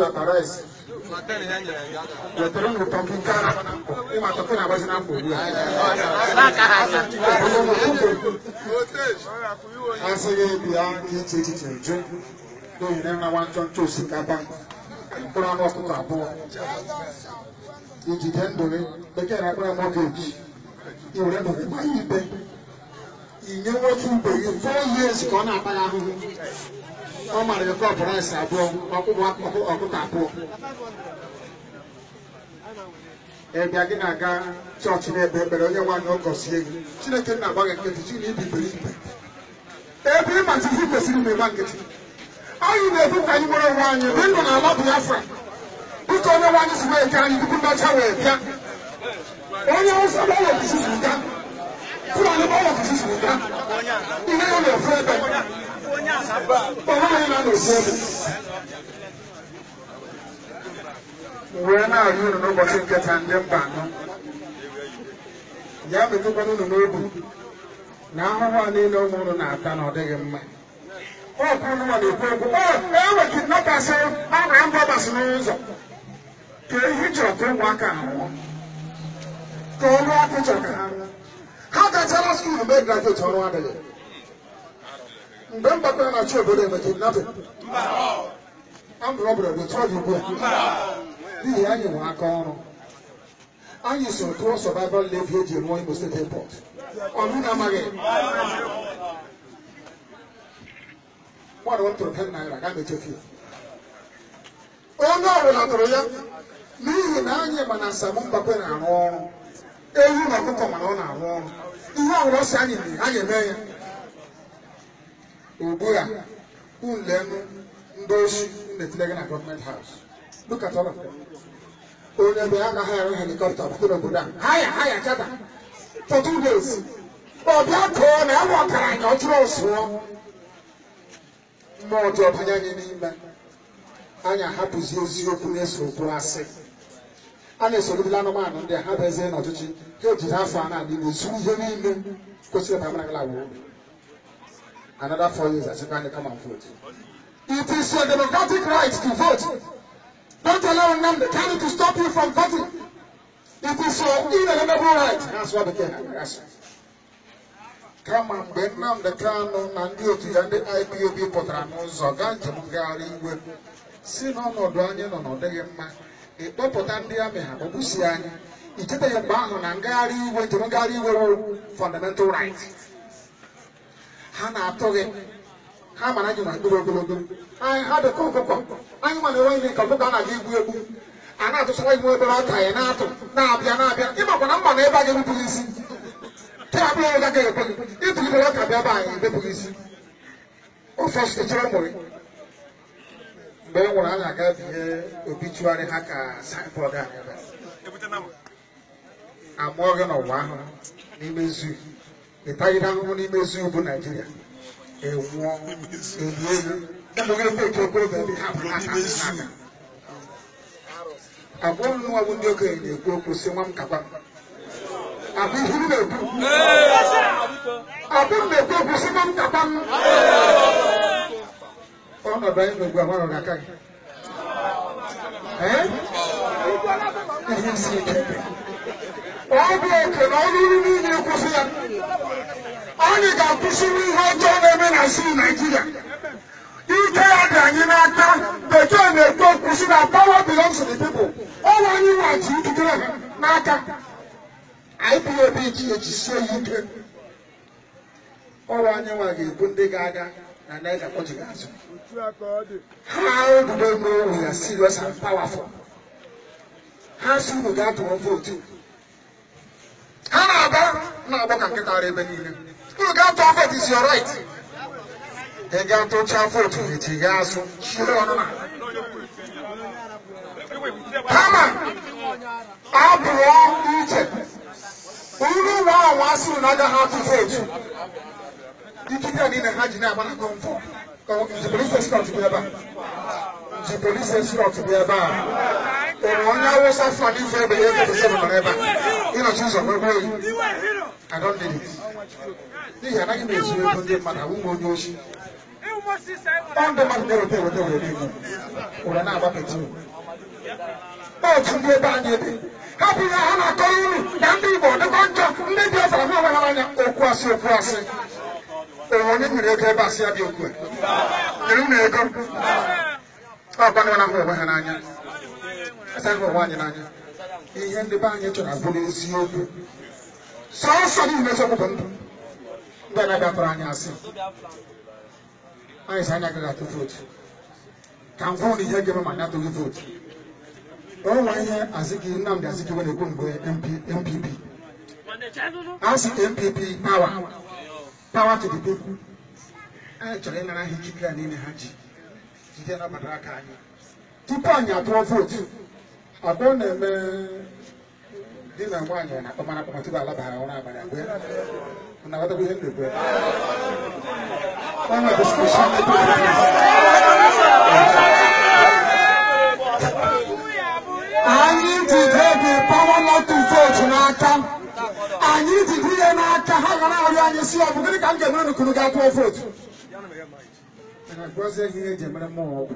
Authorize wetara ngụtọgị nke ịmatọkụ na-agbazi na mkpa ugbu a asịghị bịa iche echiche jụ n'ohere na nwa ntọ ntọ osikapa mkpụrụ anụ ọkụkọ abụọ ijide ndụrị bekee na akpụrụ anụ ọgeji iwere ndụrị gba ya ikpe inye nwoke ibe gị four years ka ọ na-akpa ya ahụhụ ọ mara ya kọpụ rice abụọ ọkụkọ abụọ ịbịa gị na-aga chọọchị na-ekpe ekpere onye nwaanyị ọ gọzie gị chineke nna agba gị nkịtị chi na ibibiri ibe ebe ị ịmachizi kwesịrị m ịma nkịtị anyị na ebu ka anyị nwere onwe anyị mgbe ndụ na ala bụ afra dịka onye nwaanyị si na-eke anyị tupu mmacha wee bịa onye ụzọ gbanwepụsisi ga fụlani gbanwepụsisi ga ihe ya na-efu ebe onweghị na n'okwu m wee na-arị unu n'ụbọchị nketa ndị mba anọ ya metụkwana unu n'obi na ahụhụ a niile ụmụ unu na-ata na ọ dịghị mma ọkụ unu ma na-ekwu okwu enwe kidnapasị a na mbọ gbasị n'ụzọ ka ehi chọrọ ka ụmụaka ahụọ ka ọnụ ọkụ chọrọ ka ha ha gachara skuulu mee grajueti ọrụ adịghị bẹ́ẹ̀ bá na-achị obodo eme kidnapping ambụrọbụrụ metụọ gị ugbu a n'ihi anyị nwe aka ọrụ anyị so tụọ survival levy eji rụọ Imo State Airport ọnụ na-amaghị mmadụ tụrụ ten naira ga mechefu onye ọbụla tụrụ ya n'ihi na anyị ma na Saamu Mbakwe na-arụ ọrụ ewu na ọkụkọ mana ọ na-arụ ọrụ ihe ọbụla ọ anyị mee anyị eme ya ugbu a unlenu ndị oshi na-etile na gọọmenti haus look at all of them onye bụ ya na gaghị arụ helikọpta bụrụ obodo ya ha ya chata for two days ọ bịa kụọ na ya nwọtara anyị ọ jụrụ ọsụọ mmụọ ọjọọ banye anyị n'ime anyị ahapụzi eziokwu na-eso okwu asị a na-esorobila anụmanụ ndị a ha bezie n'ọchịchị ha ejiri afọ a na-adị na ihe niile kwesịrị ịba mara gala obi another four years as you can come and vote. It is your democratic right to vote. Don't allow Nnamdi Kanu to stop you from voting. It is your inalienable right. That's what the Kenya has. Kama mgbe Nnamdi Kanu na ndị otu ya ndị IPOB pụtara n'ụzọ gaa njem ngagharị iwe si n'ọnọdụ anyị nọ n'ọdịghị mma ịkpọpụta e, ndị amị ha kpọgbusie anyị icheteghị e, mgbe ahụ na ngari iwe njem ngagharị iwe fundamental right. ha na-atụ gị ha mara gị na mkpụrụ ogologo anyị ha dịka ọkụkọ anyị nwa na-enwe ihe ka ọkụkọ a na-aga egwu egwu a na-atụsara gị nwe obere ọka ya na-atụ na-abịa na-abịa ịmakwa na mma na ebe a ga-ebupụghị isi ke a bụghị ga gaghị ekwe gị ịtụlibere ọka bịa ebe anyị ebepụghị isi ofe ọsụtụchara e mụrụ mgbe e nwere anyị aga binye obi ha ka saịbọọdụ anyị amụọ gị n'ụwa ahụ n'ime zuu nipa yi n'ime ezu naijiria enwụọ ebie ya ndụghị ebe ndị okenye na-ekwu okwu si nwa m kaba m ihu m na-ekwu abụ m na-ekwu okwu si nwa m kaba m ọnọdụ anyị n'ogbu agbara na aka gị ihe si ike ọ bụ oke na ọlụrụ niile kwụsị ya anyị ga-akwụsịrị ihe ọjọọ na-eme na sii naijiria ike ya dị anyị n'aka bekee na-ekwu kwụsị na power belongs to the people ọnwa anyị nwaji ikikere ha n'aka IPOB ji ejisie ya ike ọnwa anyị nwa ga-ebu ndị ga-aga na naija kpọjighị azụ ha obudo n'owe ya serious and powerful ha si unu ga-atụrụ vootu na-agbọ ka nkịta ara ebe niile unu gaa tụọ vote is your right ị gaa tụchaa vote echi gaa asụ shiri ọnụma kama abụọ iche unu nwa anwa asịrị na agaghị atụ vote ikike niile ha ji na-agba na kọmfọ nji polisi escort bụ ebe a nji polisi escort bụ ebe a enwere onye awụsa flan ife ebe ya ebe ebe nọrọ ebe a ịnọchi ụzọ nwegwe oyi adọndịrị n'ihi ego ndị mmadụ onye ndị mmadụ were otu ndị ebe ebe bụ ihe ha na-akọrọ unu na ndị Igbo dịkwa njọ ndị dị ọzara ha onwe ha anya okwu asị okwu asị onye nwere ego ebe asị ya dị okwu nyere unu ego ọkwa na ha onwe ha n'anya asaghị ụwa anyị n'anya ihe ndị be anyị chọrọ abụrụ eziokwu sọsọ niile chọpụta ndụ ndị anaghị atụrụ anyị asị anyị sị anya agaghị atụ vootu ka m na ihe ga-eme ma anyị atụghị vootu ọnwa ihe azigi nnamdị azigiwe na-ekwu mgbe mpp asị mpp pawa pawa to the people anyị chọrọ ịnara ha ikike a niile ha ji jide na aka anyị tupu anyị atụọ vootu ọ na-eme di na nwaanyị na tupu alabara ụra abalị ihe anyị ji dị pawa nọtụ vootu n'aka anyị ji ya n'aka ha ga na-arịọ anyị si ọ bụ gịnị ka m ga-emere n'ukunu ga vootu eji emere mmụọ ọgwụ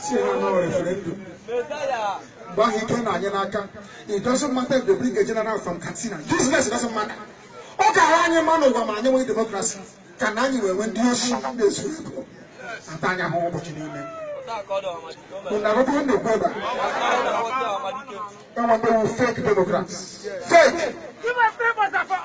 si na no referendum gbahike na it doesn't matter if they bring a general from katsina business doesn't matter ọ ga-ahụ anyị mma n'ụwa ma anyị nwee demokrasi ka na anyị wee nwee ndị osi na-esu ego ata anya ha ụbọchị niile Unarokon the brother. Someone who fake Democrats. Fake. Give us papers,